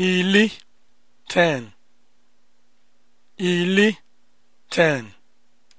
ili ten ili ten